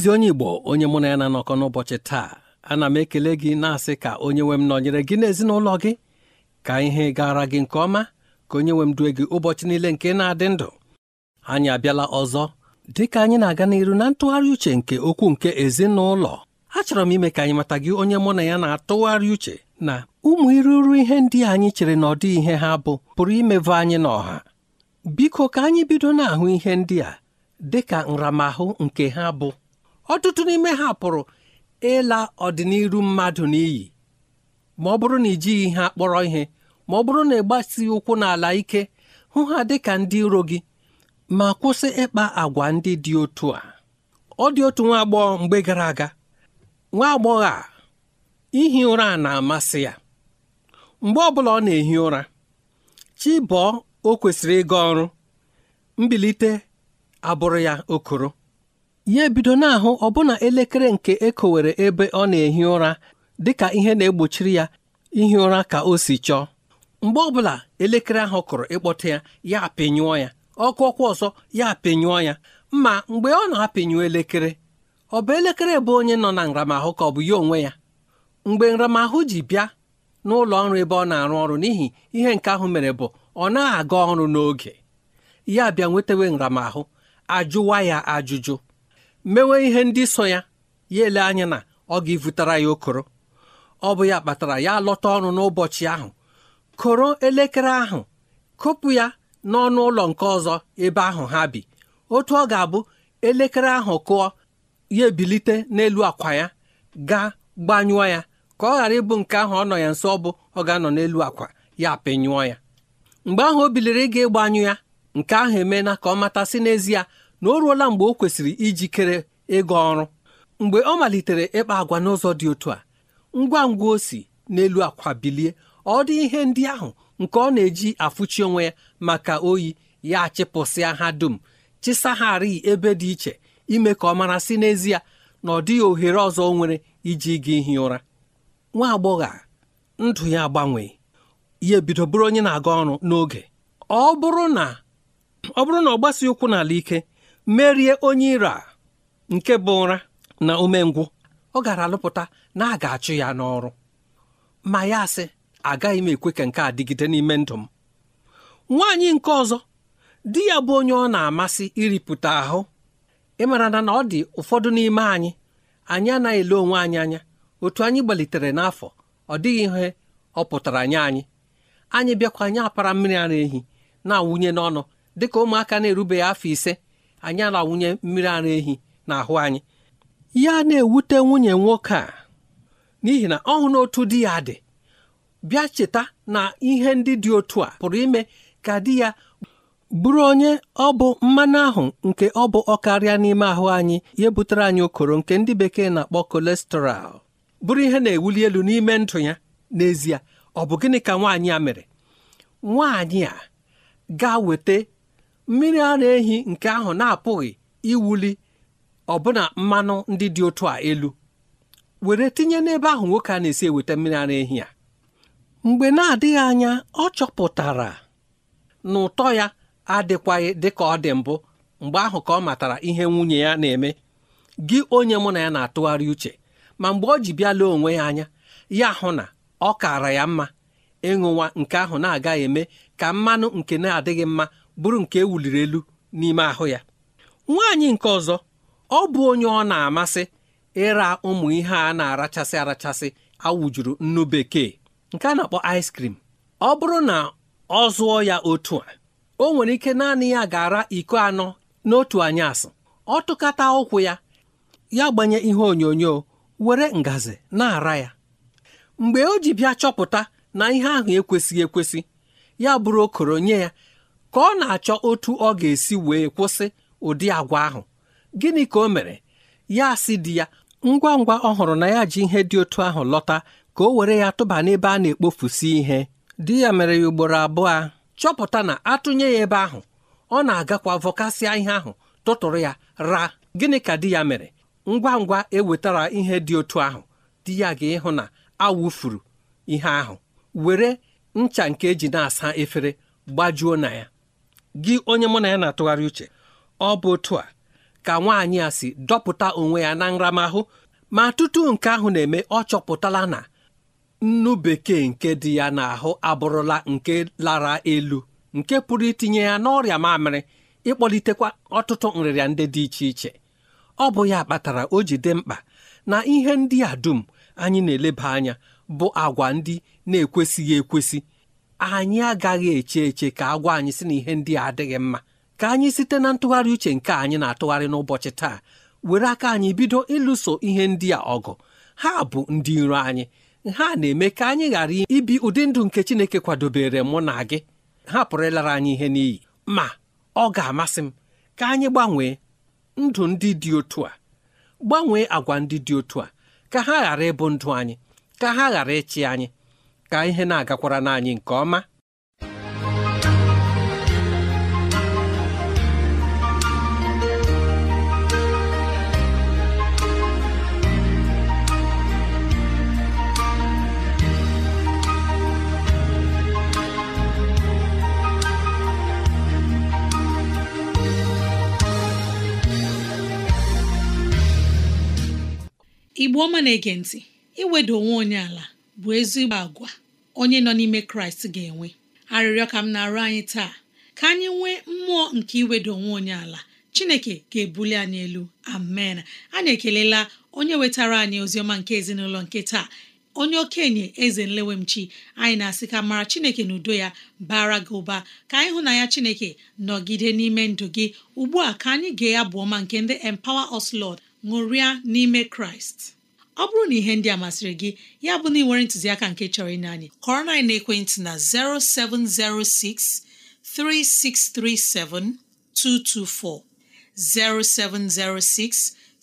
ezi onye Igbo onye mụ na ya na-anọkọ n'ụbọchị taa ana m ekele gị na-asị ka onye nwe m nọnyere gị n'ezinụlọ gị ka ihe gara gị nke ọma ka onye nwe m due gị ụbọchị niile nke na-adị ndụ anyị abịala ọzọ dị ka anyị na-aga n'iru na ntụgharị uche nke okwu nke ezinụlọ achọrọ m ime ka anyị mata gị onye mụ na ya na-atụgharị uche na ụmụ iruru ihe ndị anyị chere na ọdị ihe ha bụ pụrụ imeva anyị n'ọha biko ka anyị bido na-ahụ ihe ndị a dị ka nramahụ nke ha bụ ọtụtụ n'ime ha pụrụ ịla ọdịnihu mmadụ n'iyi ma ọ bụrụ na ijighị ihe akpọrọ ihe ma ọ bụrụ na ịgbasi ụkwụ n'ala ike hụ ha dị ka ndị iro gị ma kwụsị ịkpa agwa ndị dị otu a ọ dị otu nwa agbọghọ mgbe gara aga nwa agbọghọ a ihi ụra a na-amasị ya mgbe ọbụla ọ na-ehi ụra chi o kwesịrị ịga ọrụ mbilite abụrụ ya okoro ya ebido na-ahụ ọbụna elekere nke ekowere ebe ọ na-ehi ụra dịka ihe na-egbochiri ya ihi ụra ka o si chọọ mgbe ọbụla elekere ahụ kụrụ ịkpọta ya ya apịnyụọ ya ọkụ ọkụ ọzọ ya apịnyụọ ya ma mgbe ọ na-apịnyụ elekere ọ bụ elekere bụ onye nọ na nramahụ ka ọ bụ ya onwe ya mgbe nramahụ ji bịa n'ụlọ ọrụ ebe ọ na-arụ ọrụ n'ihi ihe nke ahụ mere bụ ọ na aga ọrụ n'oge ya bịa nwetewe nramahụ ajụwa ya ajụjụ mewe ihe ndị so ya ya ele anya na ọ ga-evutara ya okoro ọ bụ ya kpatara ya lọta ọrụ n'ụbọchị ahụ koro elekere ahụ kopụ ya n'ọnụ ụlọ nke ọzọ ebe ahụ ha bi otu ọ ga-abụ elekere ahụ kụọ ya ebilite n'elu akwa ya gaa gbanyụọ ya ka ọ ghara ịbụ nke ahụ ọ nọ ya nso ọ bụ ọ ga-anọ n'elu akwa ya pịnyụọ ya mgbe ahụ o biliri ịga ịgbanyụ ya nke ahụ emeela ka ọ matasị n'ezie na o ruola mgbe o kwesịrị ijikere ịga ọrụ mgbe ọ malitere ịkpa agwa n'ụzọ dị otu a ngwa ngwa o si n'elu akwa bilie ọ dị ihe ndị ahụ nke ọ na-eji afụchi onwe ya maka oyi ya chịpụsịa ha dum chịsagharị ebe dị iche ime ka ọ mara si n'ezie na ọ dịghị ohere ọzọ o nwere iji ga ihi ụra nwa agbọghọ a ndụ ya agbanwee ya ebido bụrụ onye na-aga ọrụ n'oge ọ bụrụ na ọ bụrụ na ọ gbasi ụkwụ n'ala ike merie onye ira nke bụ ụra na umengwụ ọ gara alụpụta na a ga-achụ ya n'ọrụ ma ya sị agaghị m ekwe ka nke a dịgide n'ime ndụ m nwaanyị nke ọzọ di ya bụ onye ọ na-amasị iripụta ahụ ịmara na na ọ dị ụfọdụ n'ime anyị anyị anaghị ele onwe anyị anya otu anyị gbalitere n'afọ ọ dịghị ihe ọ pụtara nye anyị anyị bịakwa anyị apara mmiri ara ehi na-awụnye n'ọnụ dịka ụmụaka na-erubeghị afọ ise anyị arawụnye mmiri ara ehi n'ahụ anyị ya na-ewute nwunye nwoke a n'ihi na ọ hụrụ otu di ya dị bịa cheta na ihe ndị dị otu a pụrụ ime ka di ya bụrụ onye ọ bụ mmanụ ahụ nke ọ bụ ọkarịa n'ime ahụ anyị ya butere anyị okoro nke ndị bekee na-akpọ kolesterọl bụrụ ihe na-ewuli elu n'ime ndụ ya n'ezie ọ bụ gịnị ka nwaanyị a mere nwaanyị a ga-weta mmiri ara ehi nke ahụ na-apụghị iwuli ọbụna mmanụ ndị dị otu a elu were tinye n'ebe ahụ nwoke a na-esi eweta mmiri ara ehi a mgbe na-adịghị anya ọ chọpụtara na ụtọ ya adịkwaghị dị ka ọ dị mbụ mgbe ahụ ka ọ matara ihe nwunye ya na-eme gị onye mụ na ya na-atụgharị uche ma mgbe ọ ji bịa onwe ya anya ya hụ na ọ kaara ya mma ịṅụwa nke ahụ na-agaghị eme ka mmanụ nke na-adịghị mma bụrụ nke ewuliri elu n'ime ahụ ya nwaanyị nke ọzọ ọ bụ onye ọ na-amasị ịra ụmụ ihe a na-arachasị arachasị awujuru nnu bekee nke a na-akpọ ice cream ọ bụrụ na ọ zụọ ya otu a o nwere ike naanị ya ga-ara iko anọ n'otu anyasị ọ tụkata ụkwụ ya ya gbanye ihe onyonyo were ngazi na-ara ya mgbe o ji bịa chọpụta na ihe ahụ ekwesịghị ekwesị ya bụrụ okoro nye ya ka ọ na-achọ otu ọ ga-esi wee kwụsị ụdị agwa ahụ gịnị ka o mere ya sị di ya ngwa ngwa ọ hụrụ na ya ji ihe dị otu ahụ lọta ka o were ya tụba n'ebe a na-ekpofusi ihe di ya mere ya ugboro abụọ chọpụta na atụnye ya ebe ahụ ọ na-agakwa vọkasịa ihe ahụ tụtụrụ ya ra gịnị ka di ya mere ngwa ngwa ewetara ihe dị otu ahụ di ya ga-ịhụ na awụfuru ihe ahụ were ncha nke eji na-asa efere gbajuo na ya gị onye mụ na ya na-atụgharị uche ọ bụ otu a ka nwaanyị a si dọpụta onwe ya na nramahụ ma tutu nke ahụ na-eme ọ chọpụtala na nnu bekee nke dị ya n'ahụ abụrụla nke lara elu nke pụrụ itinye ya n'ọrịa mamịrị ịkpọlitekwa ọtụtụ nrịrịa ndị dị iche iche ọ bụ ya kpatara o ji dị mkpa na ihe ndị a dum anyị na-eleba anya bụ agwa ndị na-ekwesịghị ekwesị anyị agaghị eche eche ka agwa anyị si na ihe ndị a adịghị mma ka anyị site na ntụgharị uche nke anyị na-atụgharị n'ụbọchị taa were aka anyị bido ịlụso ihe ndị a ọgụ ha bụ ndị iro anyị ha na-eme ka anyị ghara ibi ụdị ndụ nke Chineke kwadobere mụ na gị ha pụrụ ịlara anyị ihe n'iyi ma ọ ga-amasị m ka anyị gbanwee ndụ ndị dị otu a gbanwee agwa ndị dị otu a ka ha ghara ịbụ ndụ anyị ka ha ghara ịchị anyị ka ihe na-agakwara n'anyị nke ọma igbo ọma na-ege ntị iweda onwe onye ala bụ ezigbo agwa onye nọ n'ime kraịst ga-enwe arịrịọ ka m na-arụ anyị taa ka anyị nwee mmụọ nke iwedo onwe onye ala chineke ga-ebuli anyị elu amen anyị ekelela onye wetara anyị oziọma nke ezinụlọ nke taa onye okenye eze nlewemchi anyị na-asị ka mara chineke na udo ya bara gị ụba ka anyị hụ na ya chineke nọgide n'ime ndụ gị ugbu a ka anyị gee ya bụ ọma nke ndị empower us lord ṅụrịa n'ime kraịst ọ bụrụ na ihe ndị amasịrị gị ya bụ na ị nwere ntụziaka nke chọrọ ịnye anyị kọrọ na ekwentị na 0706 3637 224 0706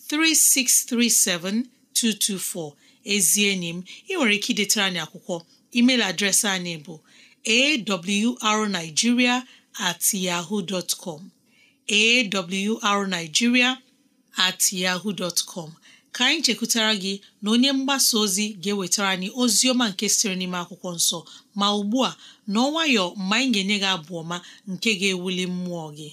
3637 224 ezi enyi m ị nwere ike idetara anyị akwụkwọ email adreesị anyị bụ awrnigeria at ka anyị chekwutara gị na onye mgbasa ozi ga-ewetara anyị ozi ọma nke siri n'ime akwụkwọ nsọ ma ugbu a na ọnwayọ mgbe anyị ga-enye gị abụ ọma nke ga-ewuli mmụọ gị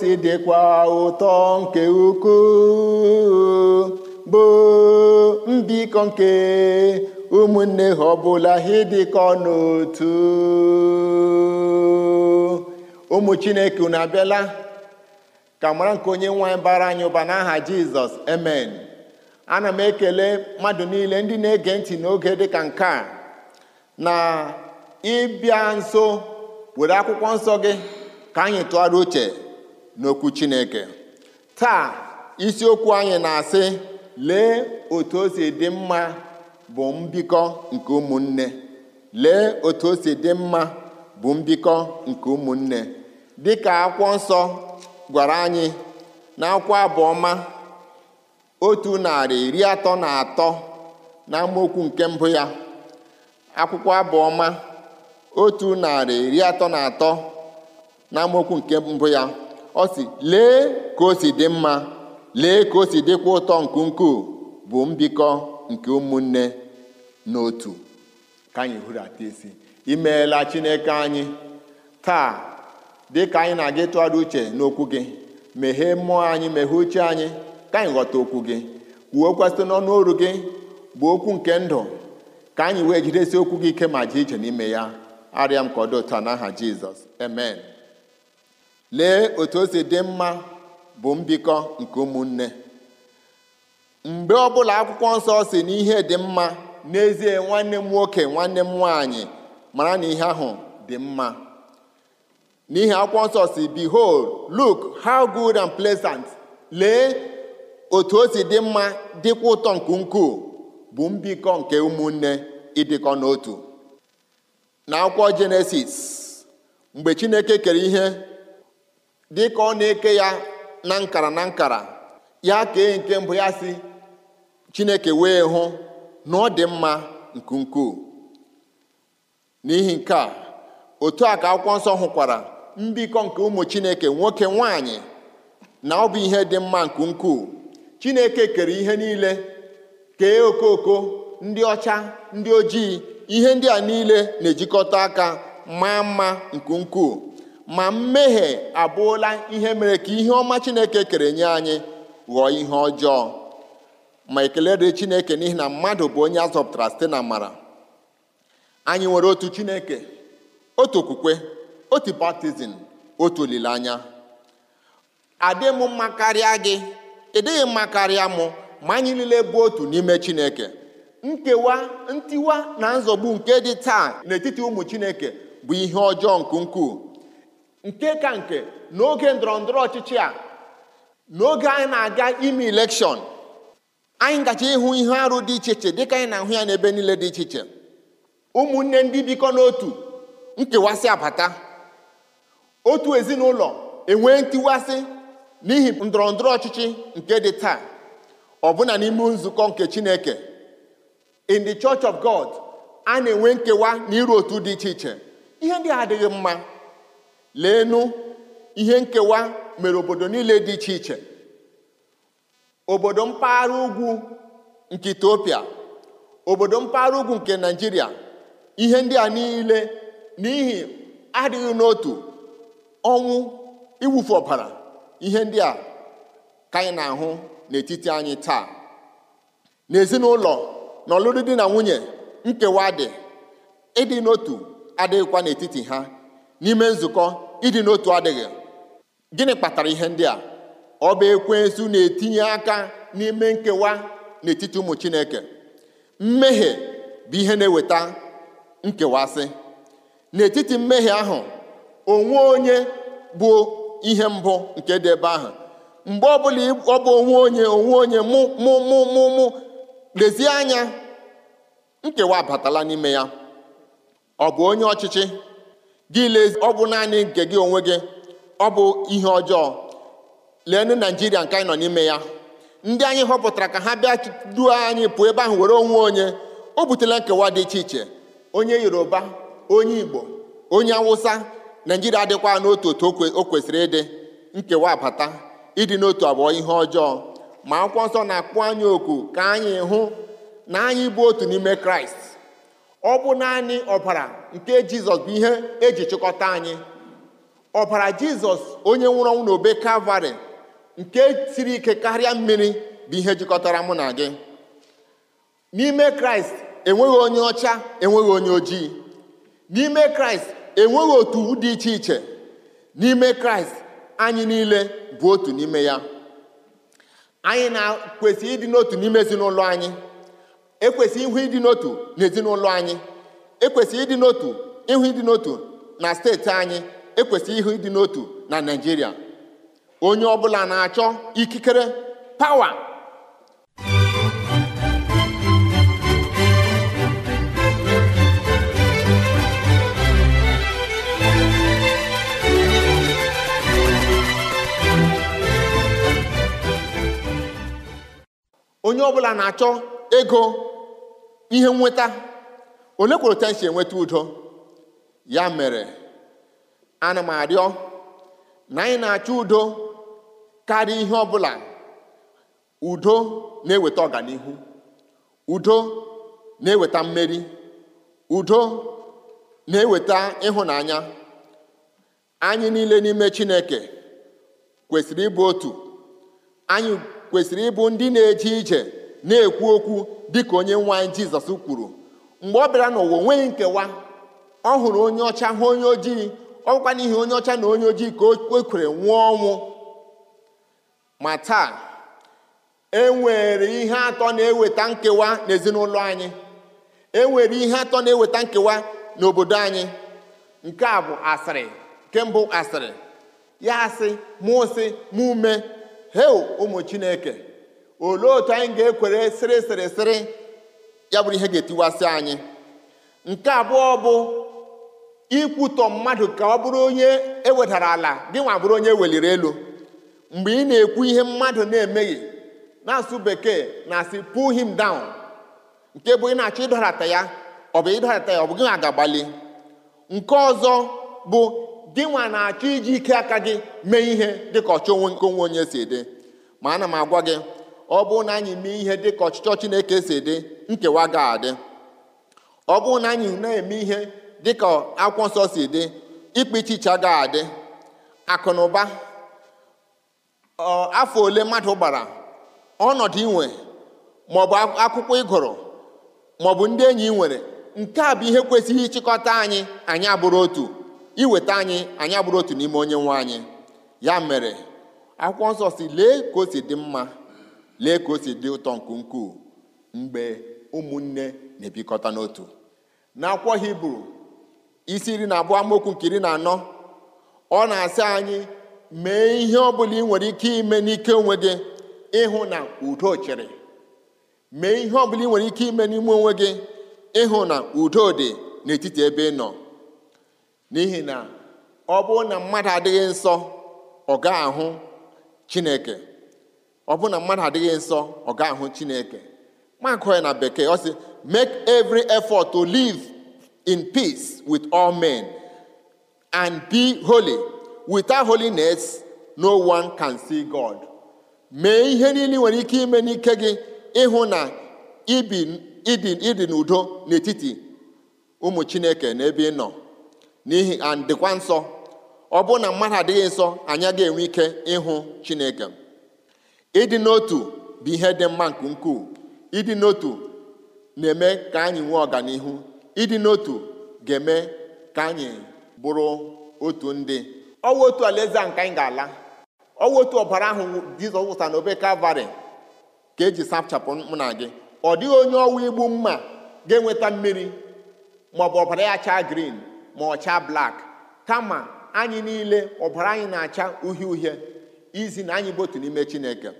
si dịkwa ụtọ nke ukwuu bụ mbikọ nke ụmụnne ha ọbụla ha ịdịkọ n'otu ụmụ chineke unu abịala ka mara nke onye nwe bara anyị ụba n'aha jizọs emen ana m ekele mmadụ niile ndị na-ege ntị n'oge ka nke a na ịbịa nso were akwụkwọ nsọ gị ka anyị tụgharịa uche n'okwu Chineke taa isiokwu anyị na-asị lee otu o dị mma bụ mbikọ nke ụmụnne lee otu o si dị mma bụ mbikọ nke ụmụnne dịka akwụkwọ nsọ gwara anyị na akwụkwọ abụọma otu narị iri atọ na atọ na akwụkwọ abụọma otu narị iri atọ na atọ na mmokwu nke mbụ ya ọ si lee ka o si dị mma lee ka o si dịkwa ụtọ nke ukwuu bụ mbikọ nke ụmụnne n'otu ka anyị hụrata isi imeela chineke anyị taa dị ka anyị na-aga ịtụgharị uche n'okwu gị meghee mmụọ anyị meghee uche anyị ka anyị ghọta okwu gị kwuokwa na n'ọnụ oru gị bụ okwu nke ndụ ka anyị wee jidesi okwu gị ike ma jee ije n'ime ya arịa m ka ọ dị otu aha n'aha jizọs amen lee otu o si dị mma bụ mbikọ nke ụmụnne mgbe ọbụla akwụkwọ nsọ si na ihe dị mma n'ezie nwanne m nwoke nwanne m nwaanyị mara na ihe ahụ dị mma n'ihi akwụkwọ nsọ si behold look how good and pleasant lee otu o si dị mma dịkwa ụtọ nke ukwuu bụ mbikọ nke ụmụnne ịdịkọ n'otu na akwụkwọ jenesis mgbe chineke kere ihe dị ka ọ na-eke ya na nkara na nkara ya kee nke mbụ ya si chineke wee hụ na ọ dị mma nke ukwuu n'ihi nke a otu a ka akwụkwọ nsọ hụkwara mbikọ nke ụmụ chineke nwoke nwanyị na ọ bụ ihe dị mma nke ukwuu chineke kere ihe niile kee okooko ndị ọcha ndị ojii ihe ndị a niile na-ejikọta aka maa mma nke ukwuu ma mmehie abụọla ihe mere ka ihe ọma chineke kere nye anyị ghọọ ihe ọjọọ ma ekele dị chineke n'ihi na mmadụ bụ onye a zọpụtara site na mara anyị nwere otu chineke otu okwukwe otu baptizim otu olileanya adị m mma karịa gị ịdịghị mma karịa mụ ma anyị niile bụ otu n'ime chineke nkewa ntiwa na nzọgbu nke dị taa n'etiti ụmụ chineke bụ ihe ọjọọ nke ukwuu nke ka nke n'oge ndọrọ ndọrọ ọchịchị a n'oge anyị na-aga ime elekshọn anyị gacha ịhụ ihe arụ dị iche iche dịka anyị na-ahụ ya n'ebe niile dị iche iche ụmụnne ndị bikọ n'otu nkewasị abata otu ezinụlọ enwee ntiwasị n'ihi ndọrọ ndọrọ ọchịchị nke dị taa ọbụna n'ime nzukọ nke Chineke in the Church of God a na-enwe nkewa na iru otu dị iche iche ihe ndị adịghị mma leenụ ihe nkewa mere obodo niile dị iche iche obodo mpaghara ugwu nke Etiopia obodo mpaghara ugwu nke Naịjirịa ihe ndị a niile n'ihi adịghị n'otu ọnwụ iwufu ọbara ihe ndị a ka anyị na-ahụ n'etiti anyị taa n'ezinụlọ na ọlụrụ di na nwunye nkewa dị ịdị n'otu adịghịkwa n'etiti ha n'ime nzukọ ịdị n'otu adịghị gịnị kpatara ihe ndị a ọ bụ na-etinye aka n'ime nkewa n'etiti ụmụ chineke mmehie bụ ihe na-eweta nkewasị n'etiti mmehie ahụ onwe onye bụ ihe mbụ nke dị ebe ahụ mgbe ọbụla ọ bụ onwe onye onwe onye mụ lezie anya nkewa abatala n'ime ya ọ bụ onye ọchịchị gị lezi ọ bụ naanị nke gị onwe gị ọ bụ ihe ọjọọ leenụ naijiria nke anyị nọ n'ime ya ndị anyị họpụtara ka ha bịa duo anyị pụọ ebe ahụ were onwe onye o butela nkewa dị iche iche onye yoruba onye igbo onye awụsa naijiria adịkwa n'otu otu o kwesịrị ịdị nkewa abata ịdị n'otu abụọ ihe ọjọọ ma akwụkwọ nsọ na akpụ anyị oku ka anyị hụ na anyị bụ otu n'ime kraịst ọ bụ naanị ọbara nke jizọs bụ ihe eji chịkọta anyị ọbara jizọs onye nwụrụ ọnwụ n'obe kalvarị nke siri ike karịa mmiri bụ ihe jikọtara mụ na gị n'ime kraịst enweghị onye ọcha enweghị onye ojii n'ime kraịst enweghị otu dị iche iche n'ime kraịst anyị niile bụ otu n'ime ya anyị na-kwesị ịdị n'otu n'ime ezinụlọ anyị ekwesị ihu ịdị n'otu n'ezinụlọ anyị ekwesị ịdị n'otu ihu ịdị n'otu na steeti anyị ekwesị ihu ịdị n'otu na Naịjirịa onye ọbụla na-achọ ikikere pawa onye ọbụla na-achọ ego ihe nweta ole kwere enweta udo ya mere ana m arịọ na anyị na-achọ udo karịa ihe ọ bụla, udo na-eweta ọganihu udo na-eweta mmeri udo na-eweta ịhụnanya anyị niile n'ime Chineke kwesịrị ịbụ otu anyị kwesịrị ịbụ ndị na-eje ije na-ekwu okwu dịka onye nwa anyị jizọs kwuru mgbe ọ bịara n'ụwa onweghị nkewa ọ hụrụ onye ọcha hụ onye ojii ọkwa n'ihi onye ọcha na onye ojii ka o kwere nwụọ ọnwụ ma taa e nwere ihe atọ na-eweta nkewa n'ezinụlọ anyị e nwere ihe atọ na-eweta nkewa n'obodo anyị nke a bụ asịrị nke mbụ asịrị ya asị mụ sị ume heo ụmụ chineke olee otu anyị ga-ekwere sịrị sịrị sịrị ya bụrụ ihe ga-etiwasị anyị nke abụọ bụ ikwutọ mmadụ ka ọ bụrụ onye ewedara ala gị nwa bụrụ onye e weliri elu mgbe ị na-ekwu ihe mmadụ na-emeghị na-asụ bekee na-asị pull him down nke bụ ị na-achọ ịdọrata ya ọ bụ ịdọrata ya ọ bụ gị nwa ga-agbalị nke ọzọ bụ gị nwa na-achọ iji ike aka gị mee ihe dịka ọchọ onwe nke onwe onye si dị ma ana m agwa gị ọ bụrụ na anyị mee ihe dị ka ọchịchọ Chineke si dị nkewa ga-adị ọ bụrụ na anyị na-eme ihe dị ka akwụkwọ nsọ si dị ikpechicha ga-adị akụ na ụba afọ ole mmadụ gbara ọnọdụ inwe maọbụ akwụkwọ ịgụrụ maọbụ ndị enyi ị nwere nke a bụ ihe kwesịghị ịchịkọta anyị anyị abụrụ otu iweta anyị anyị abụrụ otu n'ime onye nwe anyị ya mere akwụkwọ nsọ si lee ka o si dị mma lee ka o si dị ụtọ nke ukwuu mgbe ụmụnne na-ebikọta n'otu n'akwụkwọ hibru isi iri na abụọ amaokwu nke iri na anọ ọ na-asị anyị mee ihe ọ bụla ị nwere ike ime n'ike onwe gị ịhụ na udo chịrị mee ihe ọ bụla ị nwere ike ime n'ime onwe gị ịhụ na udo dị n'etiti ebe ị nọ n'ihi na ọ bụrụ na mmadụ adịghị nsọ ọ ga-ahụ chineke ọ bụ na mmadụ adịghị nsọ ọ ahụ chineke makụ ya na bekee ọ sị make every efọt to live in peace wit all men and be holy without holiness no one can see God mee ihe niile nwere ike ime n'ike gị ịhụ na ịdị n'udo n'etiti ụmụ chineke na ebe ị nọ n'ihi and dịkwa nsọ ọ bụ na mmadụ adịghị nsọ anyị ga enwe ike ịhụ chineke ịdị n'otu bụ ihe dị mma nke ukwuu ịdị n'otu na-eme ka anyị nwee ọganihu ịdị n'otu ga-eme ka anyị bụrụ otu ndị ọwụ otu alaeze a nke anyị ga-ala ọwụ otu ọbara ahụ Jizọs wụsa n'obe Kalvarị ka eji sapchapụ mụ na gị ọ dịghị onye ọwụ igbu mma ga-enweta mmiri maọbụ ọbara ya chaa green ma ọ chaa blak kama anyị niile ọbara anyị na-acha uhie uhie izi na anyị bụ otu n'ime chineke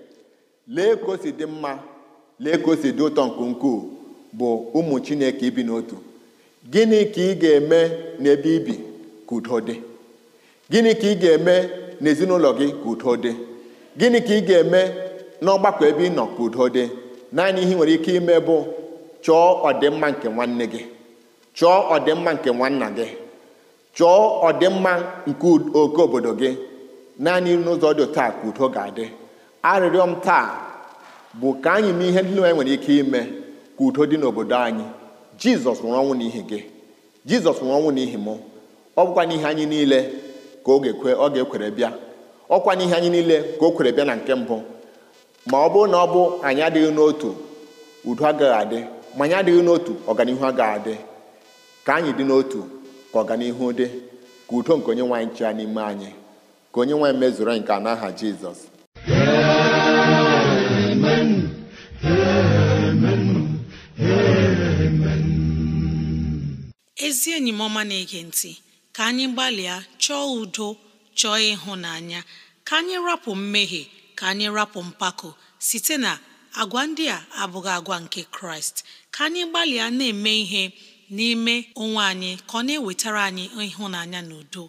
lee ka o si dị mma lee ka o si dị ụtọ nke ukwuu bụ ụmụ chineke ibi n'otu gịnị ka ị ga-eme n'ebe ibi ka udo dị gịnị ka ị ga-eme n'ezinụlọ gị ka udo dị gịnị ka ị ga-eme n'ọgbakọ ebe ị nọ ka udo dị naanị ihe nwere ike ime bụ chọọ ọdịmma nke nwanne gị chọọ ọdịmma nke nwanna gị chọọ ọdịmma nke oke obodo gị naanị n'ụzọ dị taa ka udo ga-adị arịrịọ m taa bụ ka anyị mee ihe ndị nwere ike ime ka udo dị n'obodo anyị jizọs nwụrụ ọnwụ n'ihi gị jizọs nwụrụ ọnwụ n'ihi mụ ọ bụkwa n'ihi anyị niile ka ọ ga-ekwere bịa ọkwa n'ihe anyị niile ka o kwere bịa na nke mbụ ma ọ bụrụ na ọ bụ anyị adịghị n'otu udo agaghị adị ma anyị adịghị n'otu ọganihu agaghị adị ka anyị dị n'otu ka ọganihu dị ka udo nke onye nwaanyị chịa n'ime anyị ka onye nwe mezuru nke n'aha Jizọs ezi enyi m ọma na-ege ntị ka anyị gbalịa chọọ udo chọọ ịhụnanya ka anyị rapụ mmehie ka anyị rapụ mpako site na agwa ndị a abụghị agwa nke kraịst ka anyị gbalịa na-eme ihe n'ime onwe anyị ka ọ na-ewetara anyị ịhụnanya na udo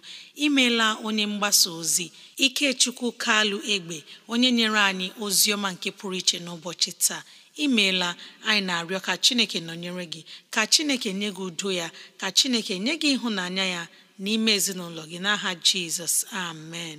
imeela onye mgbasa ozi ikechukwu kalụ egbe onye nyere anyị ozi ọma nke pụrụ iche n'ụbọchị taa imeela anyị na-arịọ ka chineke nọnyere gị ka chineke nye gị udo ya ka chineke nye gị ịhụnanya ya n'ime ezinụlọ gị n'aha jizọs amen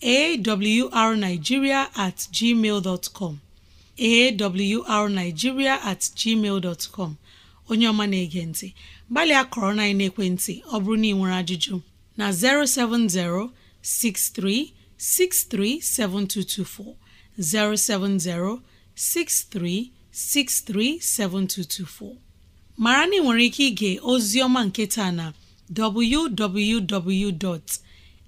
arnigiria at gmail com at gmail com onye ọma na-ege ntị gbalịa kọrọ na ekwentị ọ bụrụ na ị nwere ajụjụ na 070 7224. 070-6363-7224 mara na ị nwere ike ige ozi ọma nke taa na www.